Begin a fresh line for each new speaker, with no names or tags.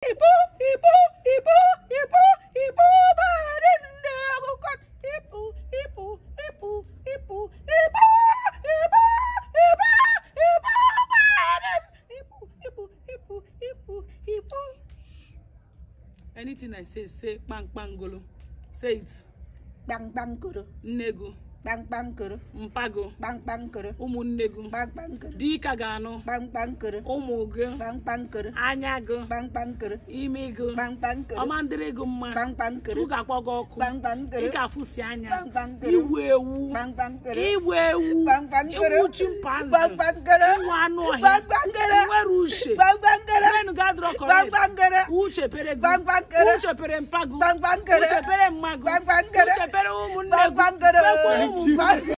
Ibu, ibu, ibu, ibu, ibu bari nne ọkụkọ. Ibu, ibu, ibu, ibu, ibu, ibu, ibu, ibu bari ibu, ibu, ibu, ibu, ibu.
Anything I say, say kpankpangolo. Say it. Kpankpangolo. Nne go. kpamkpamkoro mpago kpamkpamkoro ụmụnne gị kpamkpamkoro dịka ga-anụ kpamkpamkoro ụmụ gị kpamkpamkoro anya gị kpamkpamkoro imi gị ọma ndịrị gị mma kpamkpamkoro chukwu ga-akpọ gị ọkụ kpamkpamkoro ị ga-afụsi anya igwu ewu kpamkpamkoro igwu ewu kpamkpamkoro iwu chimpanzee kpamkpamkoro iwu anụ ọhịa kpamkpamkoro nwere uche bang corect. Bangbangere. Ucepere gu. Bang bang împagu. Bangbangere. Ucepere magu. Bangbangere. Ucepere umunegu. bang Bangbangere.